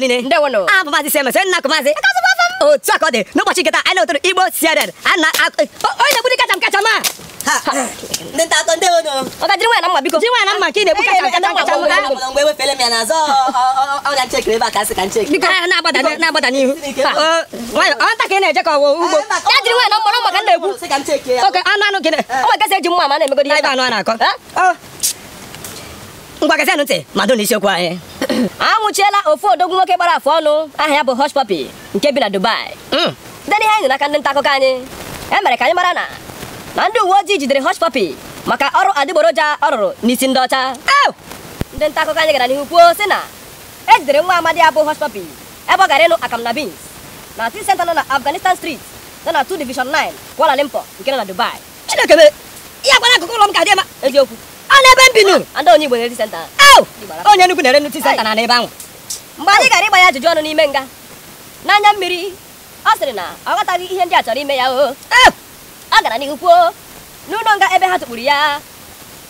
mgbe niile abụ ah, maazị Siemens nna kụmaazị otu a ka ọ dị n'ụbọchị nketa anyị na-etoro Igbo a e, onye na-egburi kacha m a mma ndị nta akọ ndị ono ọga jiri na mma biko jiri na mma ka ị na-egbu kacha nkata kacha mma e a ka na-agbada na-agbada n'ihu ọ nta ka ị eje ka ugbo ya jiri nwaanyị na mkpọrọ maka na-egwu oke anụ anụ gịnị ọ nwere gasị eji mma ma na-emegodi ihe ebe na-akọ ngwa gasị na anwụchiela ofu odogwu nwoke gbara afụ ọnụ Ah ya bụ Hush Puppy nke bi na Dubai Hmm, dari anyị nak aka ndị nta ni anyị e ya, mere ka anyị mara na na Hush Puppy maka ọrụ adi boroja, rụrụ n'isi ndị ọcha ndị nta akụkọ anyị gara n'ihu kwuo sị na e jidere nwa amadi ya Hush Puppy ebe ọ gara akam na beans na tea center na Afghanistan Street nana na Division 9 Kuala Lumpur nke nọ na Dubai chineke ya gwara akụkụ ụlọ m ka dia ema eziokwu a na ebe m bi nụ ndị onye center onye nnukwu na-ere nnukwu senta na n'ebe ahụ mgbe anyị gara ịgba ya ajụjụ ọnụ n'ime nga n'anya mmiri ọ sịrị na ọ ghọtaghị ihe ndị a chọrọ ime ya o ọ gara n'ihu kwuo n'ụlọ nga ebe ha tukpuru ya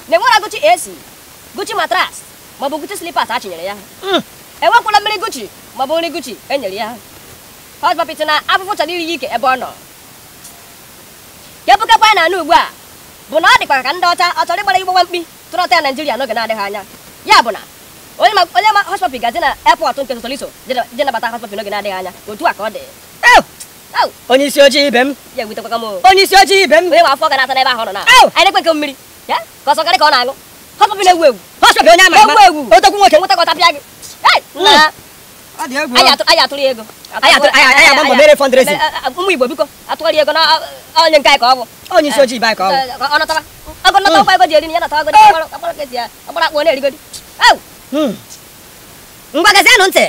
na enwera gụchi esi Gucci matras maọbụ Gucci slippers a chinyere ya hmm. enwekwala mmiri Gucci maọbụ nri Gucci enyere ya hot na afụfụ chọrọ iri ya ike ebe ọ nọ kepụkekwa ya na anụ ugbu a bụ na ọ dịkwa ka ndị ọcha ọ chọrọ ịgbara igbogba mkpi tụrọta ya Naijiria n'oge na-adịghị anya ya bụ na onye ma onye ma na airport nke Sosoliso je nabata hot n'oge na-adịghị anya otu a ka ọ dị onye isi ojii ibe m ya m onye isi ojii ibe m onye afọ ga na-ata n'ebe ahụ nọ na anyị nke mmiri ya ka ọsọ karị ka ọ na na-ewu ewu hot onye ewu ewu otokwu nwoke nweta ka ọ tapịa gị anyị atụrụ ego anyị agba mbọ mere ụmụ Igbo biko atụgharị ego na onye nke anyị ka ọ bụ onye isi ojii ibe ka ọ agụna hmm. na hmm. ya nata ngwa gezienụ ntị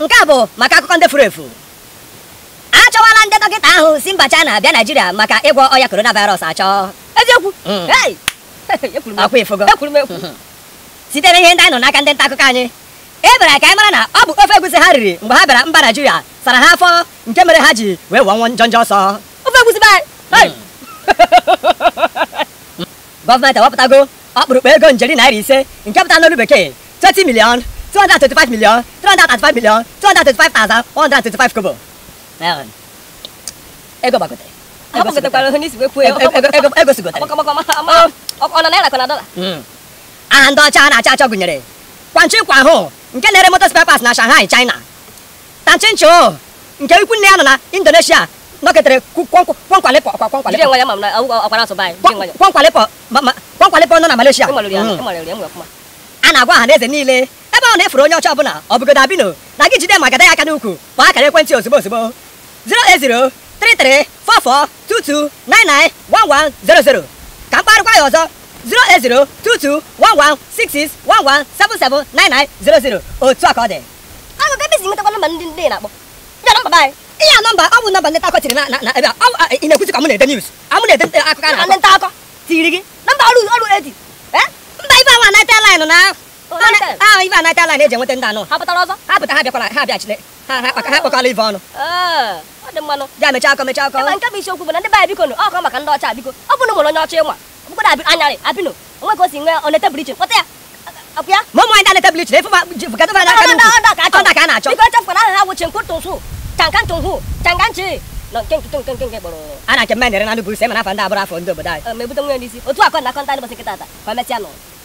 nke a bụ maka akụkọ ndị furu efu achọwala ndị dọkịta ahụ si mba China bịa Naijiria maka ịgwọ ọya coronavirus achọ eziokwu na ihe ndị anyị nọ e n'aka ndị nta akụkọ anyị Ebere ka anyị e mara na ọ bụ ofe egusi ha riri mgbe ha bịara mba Naijiria sara ha afọ nke mere ha ji wee njọ ọsọ gọọmenti ewepụtago ọkpụrụkpụ ego njeri naira ise nke pụta n'olu bekee 20 five thousand one hundred milion five kobo ego Ego ego. Ego gbagotere aha ndị ọcha na-acha achọ gụnyere kwanchi kwa ahụ nke na-ere motor spare parts na Shanghai China tanchincho nke ikwu nne ya nọ na Indonesia nọketere kwankwale pọ ọkwa pọ pọ nọ na Malaysia a na-agwa ọha na niile ebe ọ na-efuru onye ọcha ọbụla ọ bụgodo abino na gị jide ma gada ya aka n'ukwu ma akara ekwentị ozugbo ozugbo 080334422991100 ka mkparịkwa ya ọzọ 08022116611779900 otu a ka ọ dị ihe nọmba ọ bụ nọmba ndị nta akọ tiri na na ebe a ị na-ekwuzi ka m na-ede news a m na-ede akụkọ na ndị nta akọ tiri gị nọmba ọrụ ọrụ edi mba ibe awa naịtel laịn na ahụ ibe naịtel laịn eji enweta ndị anụ ha pụtara ọzọ ha pụta ha bịakwara ha bịachile ha kpakọla ive ọnụ ja mechaa akọ mechaa akọ nke bụ isiokwu bụ na ndị baya biko nụ ọkọ maka ndị ọcha biko ọ bụrụ mụrụ onye ọcha ịnwa ọkpụkpọrọ anyarị abino onwe ka o si nwee onete bụrụ iche kpọta ya mụ ụmụ anyị dị anete bụrụ iche na efu ma gata ọda ka a na-achọ biko echefukwana aha ha wụchi nkwụ tụsụ chankan chunghu chankan chi na nke nke nke nke nke kpọrọ a na-achọ mmadụ nere na ndụ bụ ise ma n'afọ ndị abụrụ afọ ndị obodo anyị ma ebute nwunye n'isi otu akọ na akọ ndị ata